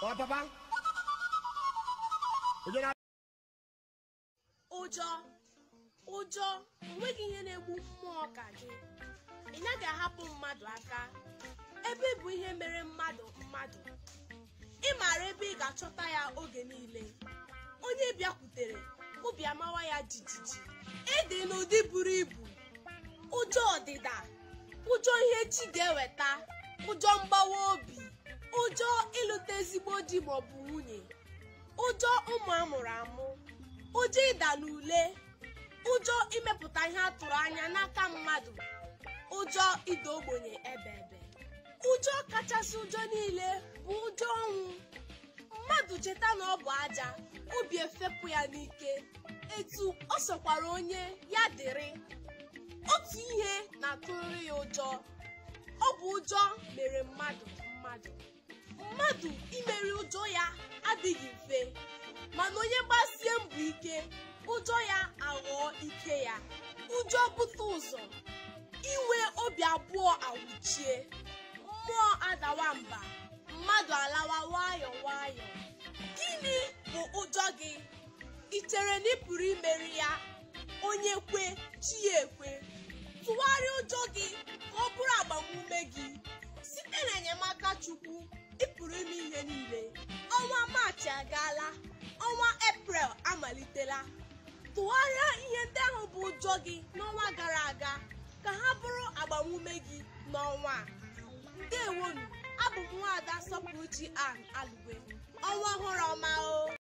Ọ papa? Ụjọ ụjọ onweghị ihe na-egbu mmụọ ka gị ị naghị ahapụ mmadụ aka ebe bụ ihe mere mmadụ mmadụ ị maara ebe ị ga-achọta ya oge niile onye bịakwutere obi amawa ya jijiji ịdị e n'ụdị buru ibu ụjọ ọdịda ụjọ ihe chi ga-eweta ụjọ mgbawa obi ụjọ ịlụta ezigbo di maọbụ nwunye ụjọ ụmụ amụrụ amụ ụjọ ịda n'ule ụjọ imepụta ihe a tụrụ anya n'aka mmadụ ụjọ ịda ogbenye ebe ebe ụjọ kachasị ụjọ niile bụ ụjọ ọnwụ mmadụ cheta na ọ bụ aja obi efepụ ya n'ike etu ọ sokwara onye ya dịrị otu ihe na-atụrịrị ya ụjọ ọ bụ ụjọ mere mmadụ mmadụ mmadụ imeri ụjọ ya adịghị mfe mana onye gbasie mbọ ike ụjọ ya aghọọ ike ya ụjọ bute ụzọ inwe obi abụọ awụchie mmụọ adawa mba mmadụ alawa nwayọ nwayọ. gịnị bụ ụjọ gị ị chere na ị pụrụ imeri ya onye kwe chi ekwe tụgharịa ụjọ gị ka ọ bụrụ agbamume gị site na enyemaka ebe niile ọnwa maachị agaala ọnwa eprel amalitela tụgharịa ihe ndị ahụ bụ ụjọ gị n'ọnwa gara aga ka ha bụrụ agbamume gị n'ọnwa ndewonu abụ m nwaada sọpụrụchi an alụ